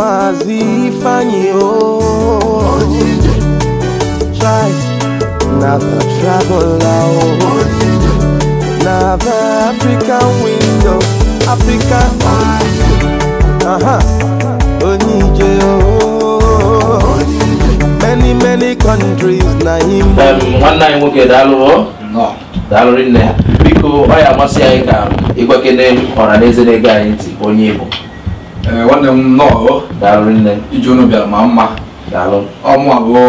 maazị Ifeanyi o try na the traveler o na the african window african aha uh-huh. onye ije o oh. many many countries na him nwanne anyị nwoke daalụ daalụ nne biko ọ ya amasị anyị ka ịgwakene ọra na eze na onye igbo nwanne m nnọọ iji unu bịara ma mma ọmụ abụọ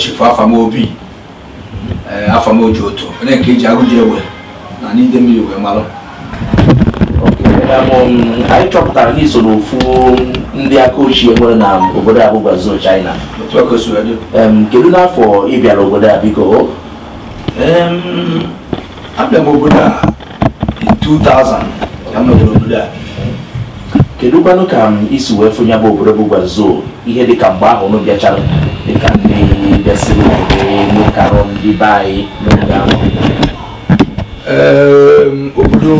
chifu afamobi afamoji otu onye nke iji agụji ewe na n'ide mmiri wee mara anyị chọpụtara gị so n'ofu ndị aka ochie nwere na obodo a bụ Guangzhou China kedu n'afọ ị bịara obodo a biko abịa m obodo a 2000 ka m nọdụrụ obodo a kedukwanụ ka um, isi wee fụnye bụ obodo bụ gwazuo ihe dịka mgbe ahụ unu bịachara dịka ndị bịasịrị elu karọ ndị be anyị n'oge ahụ ehm, obodo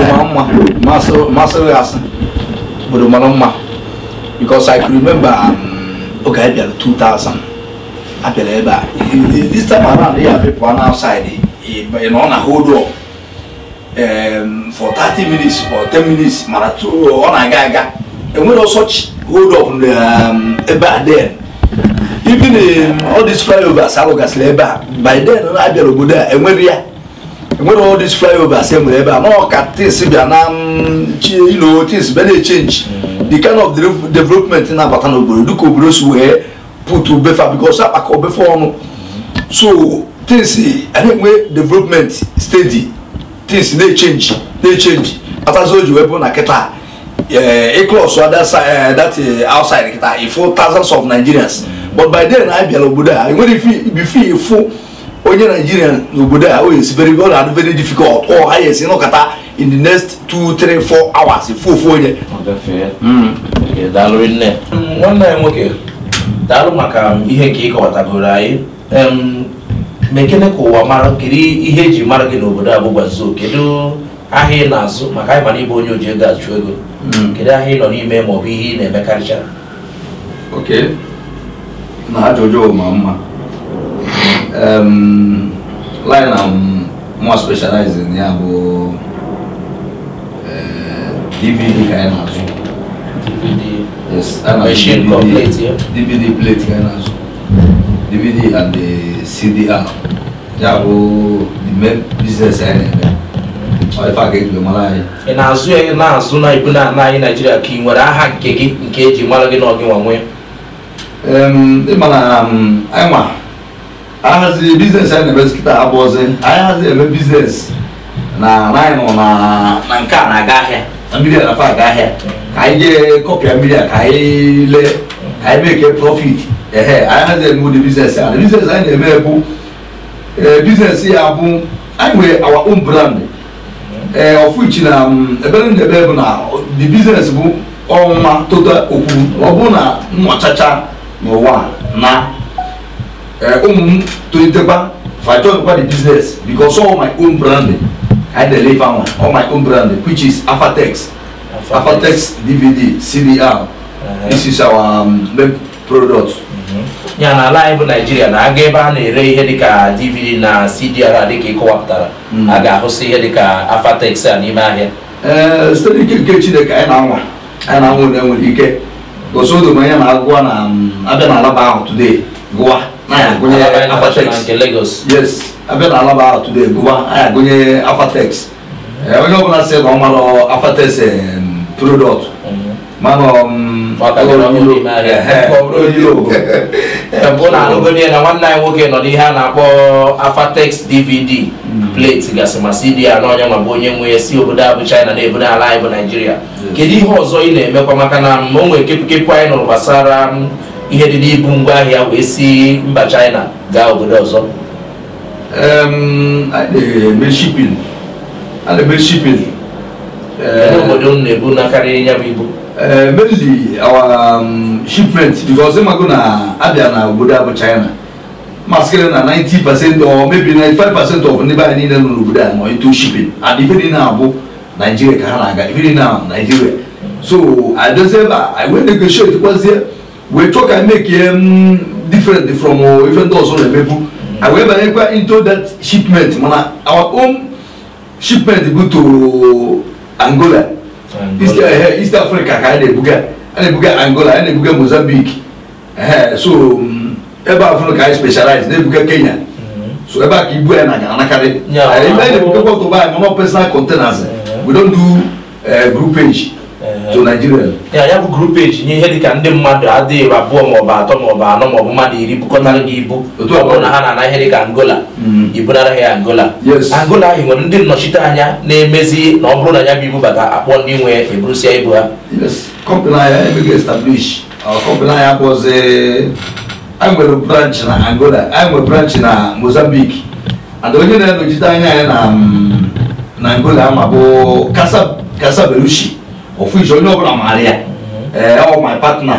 mara mma masịrị asị obodo mara mma because i can remember um, oge anyị bịara 2000 abịara ebe a this time around ya people on outside ị nọ na hold up um, for thirty minutes or ten minutes mara to ọ na-aga aga enwere such hold up um, ebe a then even um, all these flyovers alụgasịrị ebe a by then na abịara obodo a enwere ya enwere all these flyovers e nwere ebe a nọ ka tis bịa na um, ilo tis bịa na-echenji the kind of development na-abata n'obodo dịka obodo si wee put obefa because akpaka obefa ọnụ so tis a na development steady things na-echenji na-echenji after so o ji wee bụrụ na kịta ịklọs eh, eh, that eh, outside kịta ịfụ thousands of nigerians but by then I bịara obodo a nwere bife ịfụ onye naijiria n'obodo a oyi sibere ọ na-adị very difficult ọ ha yesi nọkata in the next two three four hours ifu ofu onye daalụ nne nwanne anyị nwoke daalụ maka ihe ka ị kọwatagoro anyị um, ma ekene ka ụwa mara kiri ihe eji mara gị n'obodo abụgwa zoo kedu ahịa ị na-azụ maka anyị mana ịbụ onye oji ego achụ ego hmm. kedu ahịa ị nọ n'ime ma ọ bụ ihe ị na-emekarịchara oke na ajụjụ ma mma line na mwa specializing ya bụ DVD eh, ka anyị na-azụ DVD plate ka anyị na-azụ DVD and the CDR ya bụ the main business anyị na-eme ị na-azụ ya na-azụ na ibu na anyị naijiria ka nwere aha nke gị nke eji mara gị na ọgị nwa anyị ahaziri biznes anyị na-eme abụọ abụọzi anyị haziri biznes na anyị nọ na a na-aga ahịa na aga ka anyị jee kọpịa ka anyị lee ka anyị mee e profit ɛhɛ ayɛ dɛ mo de business a de business ayɛ dɛ mɛ bu ɛɛ business yɛ abu anyway our own brand ɛɛ ɔfu ekyi ɛbɛrɛ ne bɛɛ bu na the business bu ɔma tota okuru ɔbu na mmɔkyakya na ɔwa na ɛɛ ɔmu tontegba fàjọ nípa the business because all my own brand, i dey live am all my own brand, which is afatex afatex dvd cdr uh -huh. this is our um, main product ya na ala anyị bụ naijiria na aga ebe a na-ere ihe dịka dvd na cdr dịka ịkọwapụtara hmm. a ga-ahụsị ihe dịka afatex a n'ime ahịa eh, site n'ike nke chineke anyị na-anwa anyị na-anwa onye nwere ike gosodo ma onye na-agụwa na mm, abịa na alaba ahụ today gụwa anyị agụnye afatex nke eh, Lagos yes abịa na alaba ahụ today gụwa anyị agụnye afatex onye ọbụla sị na ọ mara afatex product mhm. mana mm, ụlọ anụgodi ya na nwanne anyị nwoke nọ n'ihe a na-akpọ afatex dvd plate gasị ma cd ya na ọnya ma bụ onye nwe si obodo abụ bụ china na ebodo ala anyị bụ naijiria kedu ihe ọzọ ị na-emekwa maka na o nwere kepụkepụ anyị nụrụ gbasara ihe dị n'ibu ngwaahịa wee si mba china gaa obodo ọzọ shipping obodo na-ebu na karịa ya bụ ibu mainly eh, our um, shipment because them are gonna Abia na obodo abụ China maskere na 90 percent or maybe 95 percent of ndị baa niile nọ n'obodo a nọ into shipping and ife dị na-abụ Nigeria ka ha na-aga ife dị na Nigeria so adozie ebe a wee negotiate kwazie we talk ka make ya um, different from ife ndị ọzọ na-emebu I wee banyekwa into that shipment mana our own shipment go to Angola east, uh, east africa ka a na-ebuga a na-ebuga angola a na-ebuga mozambique so ebe a fụrụ ka anyị specialize na-ebuga kenya so ebe a ka ibu ya na anakarị ebe a na-ebugakwa ọtụba anyị mama personal containers we don do uh, groupage Uh, to nigeria ya ya bụ group age nye ihe dịka ndị mmadụ adịghị abụọ maọbụ atọ maọbụ anọ maọbụ mmadụ iri bukọtara gị ibu ọ bụrụ na ha na-ana ihe dịka angola mm. ibunara ha angola angola ahụ nwere ndị nnọchite anya na-emezi na ọ bụrụ na ya bụ ibubata akpọ ndị nwe eburusia ibu ha kọmpani anya emeghị establish kọmpani anya abụọzi anyị nwere branch na angola anyị nwere branch na mozambique and onye na-enochite anya anyị mm, na angola ama bụ kasa berushi official ní ọ̀bùnà màríà ẹ̀ ọ̀ my partner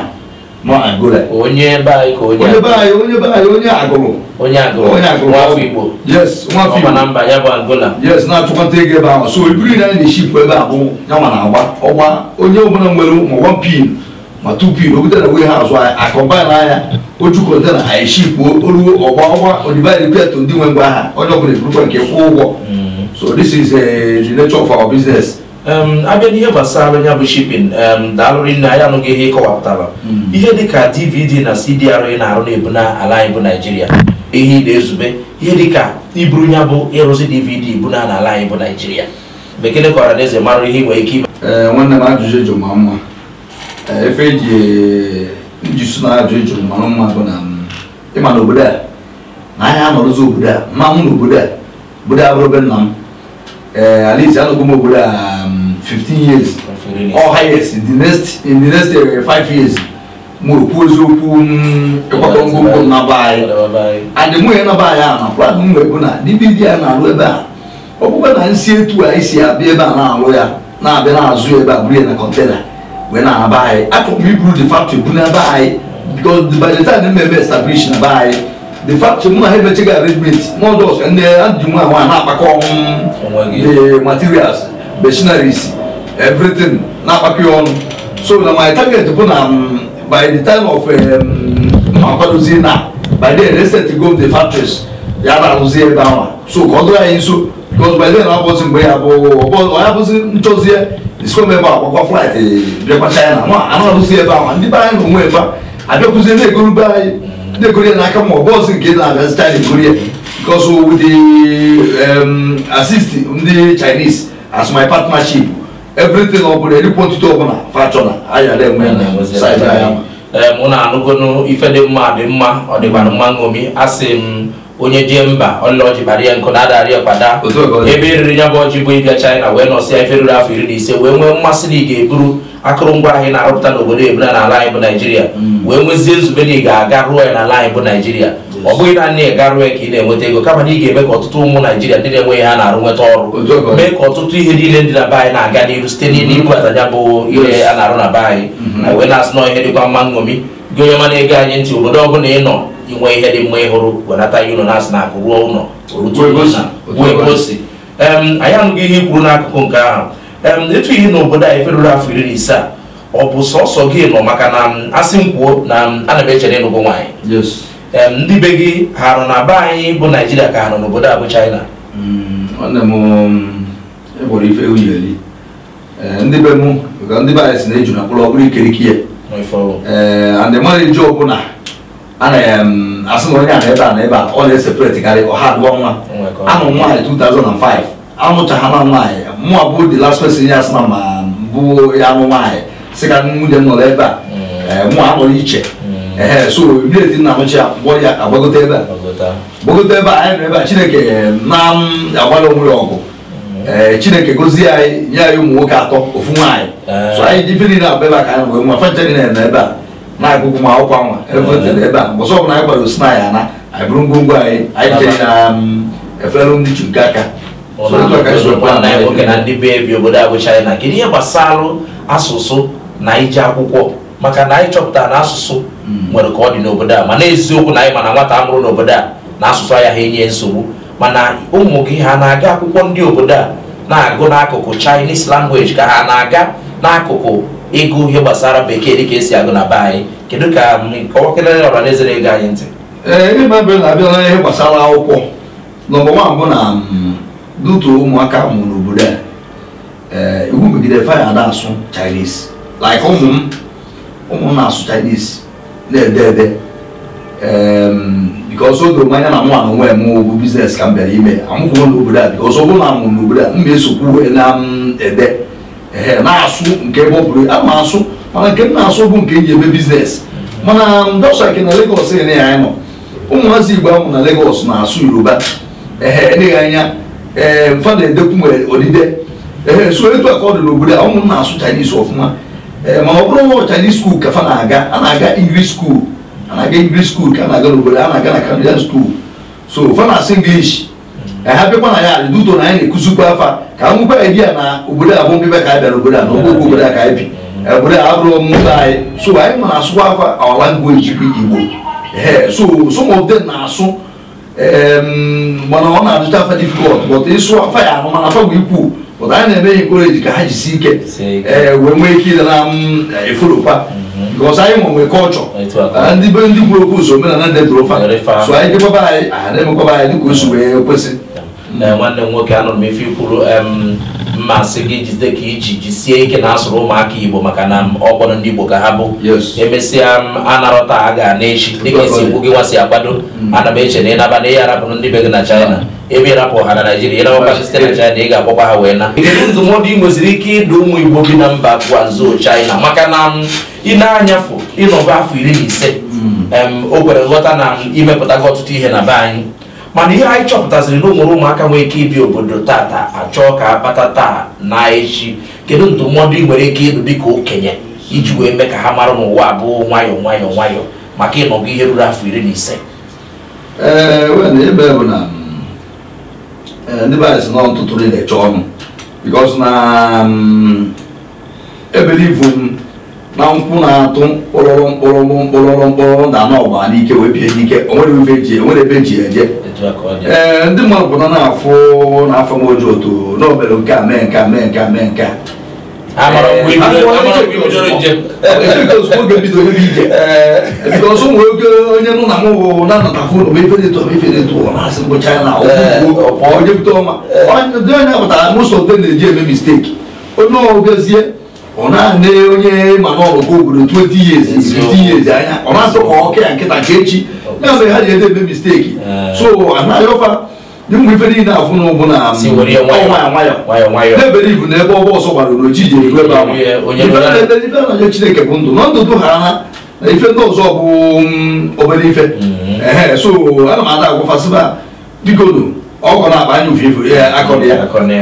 mọ àgọ́lẹ̀. onye báyìí kò onye àgọ́lẹ̀. onye báyìí onye báyìí onye àgọ́lọ̀. onye àgọ́lọ̀ onye àgọ́lọ̀ wọn fi igbo. yes wọn fi igbo ọmọ namba ya bụ àgọ́là. yes na-atụkwata ego ebe ahụ so ebiri na ndị ship ebe abụ ya nwa na-agba ọgba onye ọbụla nwere ma one pin ma two pin o butere wee ha azụ akọmbain anya otu kọntena anyị ship oruo ọgba ọgba odibaid pet ndị nwe ngwa ha onye ọbụla eburukwa nke kwụọ ụgwọ so this is the nature of our business. abịa n'ihe gbasara ya bụ shipin daalụrị nne anyị anụghị ihe ịkọwapụtara hmm. ihe dịka dvd na cdr ị na-arụ na-ebu na ala anyị bụ naijiria ihe ị na-ezube ihe dịka iburu ya bụ ịrụzi dvd bu na ala anyị bụ naijiria bekee kọrọ na eze mara ihe nwere ike ime nwanne m ajụjụ e jụrụ ma mma efe eji iji sụ na ajụjụ e jụrụ mara mma bụ na mm, ịma na obodo a na ahịa anọrụzi obodo a mma m na obodo a obodo a bụrụ be nna m ee alaeze anọgbu m obodo a fifteen years or highest in the next in the next uh, five years mo okwu eziokwu ịkwado ngwongwo m na be anyị adịmụ ya na be anyị a na kwa m wee bụ na dibidi a na-alụ ebe a ọ bụkwa na nsi etu anyị si abịa ebe a na-alụ ya na-abịa na-azụ ya ebe a buru ya na kọntena wee na-aba anyị akụkụ iburu the factory bụ na be anyị because by the time mmemme establish na be anyị the factory mụ na ha emechiga arrangement mọdọs ndị adịmụ ahụ a na-akpakọ the materials Machinery, everything n'akpakọ ya ọnụ so na my target bụ na um, by the time of mma um, kwadozie na by the end set go the factories ya na-arụzi ebe ahụ so ka ọ dụrụ anyị nso because by then abụzi mgbe ya bụ ọya bụzi nchọzie isikwa m ebe akwakwa flight bịakwa china nwa anụ arụzi ebe ahụ ndị be anyị na onwe ebe abịakwuzie na-egoro be anyị na-egoro ya n'aka ma ọ bụ ọzi nke na-abịazita na egoro ya because with the um, assist ndị chinese as my partnership everything ọ bụla ọbụla fachọna ayara enwe mụ na-anụgonu ife dị mma dị mma ọ dịkwara mma ṅomi asị m onye jee mba ọlọji bara ya nkụ na-adarị ọkpada ebe eriri ya bụ ọjị bụ ịbịa China wee nọsịa ife ruru afọ iri na ise wee nwee mmasị na ị ga-eburu akụrụngwa anyị na-arụpụta n'obodo ebula n'ala anyị bụ Naijiria hmm. wee nwezie nzube na ị ga-aga rụọ ya n'ala anyị bụ Naijiria ọ bụghị naanị ịgarụ ya ka ị na-enweta ego kama na ị ga-eme ka ọtụtụ ụmụ naijiria ndị na-enweghị ha na-arụ nweta ọrụ mee ka ọtụtụ ihe niile ndị na be anyị na-aga n'ihu site n'ibubata mm-hmm. ya bụ ihe a na-arụ na be anyị mm-hmm. na wee na-asị na ihe dịkwa mma nṅomi gị onye mana ego anyị ntị obodo ọ bụla ị nọ inwe ihe dị mma ịhụrụ wenata ya ụlọ na-asị na akụ ruo ụlọ ruo anyị anụghị ihe i kwuru n'akụkụ nke ahụ etu ihe na obodo anyị feruru afọ iri na ise a ọ bụ sọsọ gị nọ maka na asị m kwuo na ana m echere ịnụgụ nwaanyị ndị be gị ha nọ na be anyị bụ naijiria ka ha nọ n'obodo a bụ china mm, mm, e eh, ndị be mụ ka ndị be anyị si na-eju na mkpụrụ ọbụrụ ikerike ya eh, andị mmadụ ije ọbụla asị na onye a na ebe a na ebe a ọ na-eseparetịkarị ọha abụọ nwa amụ nwaanyị 2005 amụchaghị na nwaanyị mụa bụ dị las person ya asị na ma bụ ya amụ nwaanyị sị ka nwunye m nọrọ ebe a mm. eh, mụa anọrọ iche ee eh, so eti nna mụchi mgbọ ya agbagote ebe a gbagote ebe a anyị nọ ebe a chineke na-agbara onwe ya ọgụ ee chineke gozie anyị nye anyị ụmụ nwoke atọ ofu nwaanyị eh. so anyị dị ife niile abụ ebe a ka anyị wee nwa fancha niile nọ ebe a na-agụgụ ma akwụkwọ nwa evetele ebe a mbọsọ ọbụla anyị gbara osi na ya na anyị bụrụ ngwongwo anyị anyị jee na efelụ ndị chu nke aka ndị be bi obodo abụ china kedu ihe gbasara asụsụ na ije akwụkwọ maka na anyị chọpụtara na asụsụ hmm. nwere ka ọ dị n'obodo a mana eziokwu na anyị mana nwata amụrụ n'obodo a na asụsụ agaghị enye nsogbu mana ụmụ gị ha na-aga akwụkwọ ndị obodo a na-agụ n'akụkụ Chinese language ka ha na-aga n'akụkụ ịgụ ihe gbasara bekee dịka esi agụ na be anyị kedu ka mm, ọwakelere ọhaneze na ego anyị ntị ee ịma na-abịa ihe gbasara akwụkwọ nọmba nwan bụ na mm, dutu ụmụaka mụrụ n'obodo a iwu megidere faya na-asụ Chinese like ụmụ m ụmụ na-asụcha isi na-ede ede ehm, oge mmanya na nwa na onwe eme bụ biznes ka m bịara ime amụkwuo n'obodo a because ọzọ na n'obodo a m esokwu na-ede na-asụ nke ebe ọ asụ mana nke m na-asụ bụ nke m biznes mana ndọsa ke na Lagos ene ya anyị nọ ụmụazị Igbo amụ na legos na-asụ Yoruba ee eleghị anya ee ehm, na-edekwu nwere so etu a ọ dị n'obodo a ụmụ na-asụ Chinese ọfụma Eh, ma ọ bụrụ ụmụ chinese school ka fa na-aga a na-aga english school a na-aga english school ka a na-aga n'obodo a na-aga na canadian school so fa na-asụ english eh, ha bịakwa na ya duto na anyị na-ekuzikwa afa ka nwekwa ebia na obodo a bụ mbịbịa ka anyị bịara obodo a na ogbe obodo a ka anyị bi obodo a abụrụ mmụta anyị so anyị eh, ma na-asụkwa afa our language bụ igbo so some of them na-asụ mana ọ na-adịcha afa difficult but ịsụ afa ya ahụ mana afa bụ ikwu maka anyị na-eme eji ka ha jisi ike wee nwee ike ile na efolokwa because anyị nwe nwee kọlchọ ndị be ndị kwuru okwu ụzọ omenala debụrụ fa so anyị dịkwaba anyị aha na-emekwaba anyị dịka o si wee kwesị nwanne m nwoke anụrụ m ife kwuru mmasị gị jide ka iji jisie ike na asụrụ ụmụaka igbo maka na ọgbọrọ ndị igbo ka ha bụ emesịa anarọta a ga na echi dịka esi ikwu gị nwa si agbado ana m eche na ịnaba na ihe arabụrụ ndị be gị na china ebe ịrapụ ha na Naịjirịa ịrapụkwa site na China ị ga-akpọkwa ha wee na ndụmọdụ ị nweziri ike ịdụ ụmụ Igbo bi na mba Guangzhou China maka na um, ị anyafu anyafụ ịnọba afọ iri na ise o kwere nghọta na um, imepụtago ọtụtụ ihe na be anyị mana ihe anyị chọpụtaziri na ụmụrụ ụmụaka nwee ike ibi obodo tata achọọ ka akpata taa na echi kedu ndụmọdụ ị nwere ike ịdụ dịka okenye iji wee mee ka ha mara n'ụwa abụọ nwayọọ nwayọọ nwayọọ maka ịnọgụ ihe ruru afọ iri na ise ndị be anyị si nọ ntụtụrụ ị na-eche ọnụ because na ebelivu m na nkwụ na-atụ mkpụrụrụ mkpụrụrụ mkpụrụrụ mkpụrụrụ da na ọgba n'ike wee bie n'ike onwere ebe eji eje ee ndị mmadụ pụta na-afụ n'afọ m oji otu n'obere nke a mee nke a mee nke a mee nke a because ụmụ nwoke onye nụ na mụ na-anọta fon ma ife na-eto ma ife na bụ china onye bute ọma ndị onye pụtara mụsọ ndị na-eji eme misteki onye ọgụgozie ọ na-ana onye mana ọrụkọ obodo 20 years years anya ọ na-atụ ka ọka ya nkịta nke echi ya ha ji ede eme misteki so anaghị dị mgbe ife niile afụ n'ụgwụ na na-ebere ibu na ebe ọgbọ ọsọ gbara n'oji ji eru ebe ahụ chineke bụ ndụ na ndụdụ ha ha na ife ndị ọzọ bụ obere ife ee so ana m ada agwafasịba dikodu ọkọ na-akpa anya ufe ifu akọrọ ya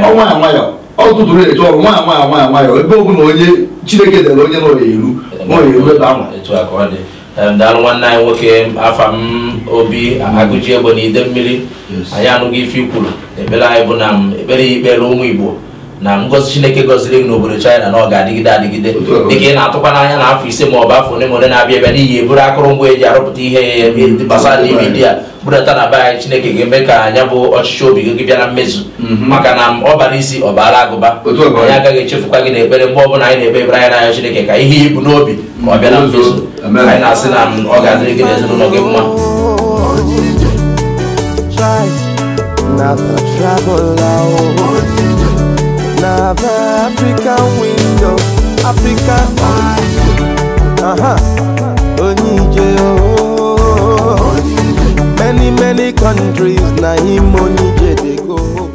ọnwa ya nwayọ ọtụtụrụ eche ọrụ nwa nwa nwa nwayọ ebe ọ bụla onye chineke dere onye n'ọya eru n'ọya eru ebe ahụ daal nwanne anyị nwoke afam obi a egbe na ide mmiri anyị anụghị ife ikwuru ekpere anyị bụ na ekpere ya ikpere ụmụ igbo na ngozi chineke gọziri gị n'obodo china na ọ ga-adịgide adịgide dịka ị na-atụkwa n'anya na afọ ise ma ọ bụ afọ ole ma na-abịa abịa n'ihi eburu akụrụngwa eji arụpụta ihe gbasara dvd a budata na be anyị chineke ga-eme ka anya bụ ọchịchị obi gị bịa na mmezu mhm. maka na ọ bara isi ọ baara agụba anyị agaghị echefukwa gị n'ekpere mgbe ọbụla anyị na-ekpe ebere anyị n'anya chineke ka ihe ibu n'obi ma ọ bịa na mhm. mmezu anyị na-asị na ọ ga-adịrị gị na gị mma have African window, African window. Uh huh. Oh. Many many countries na him Onije dey go.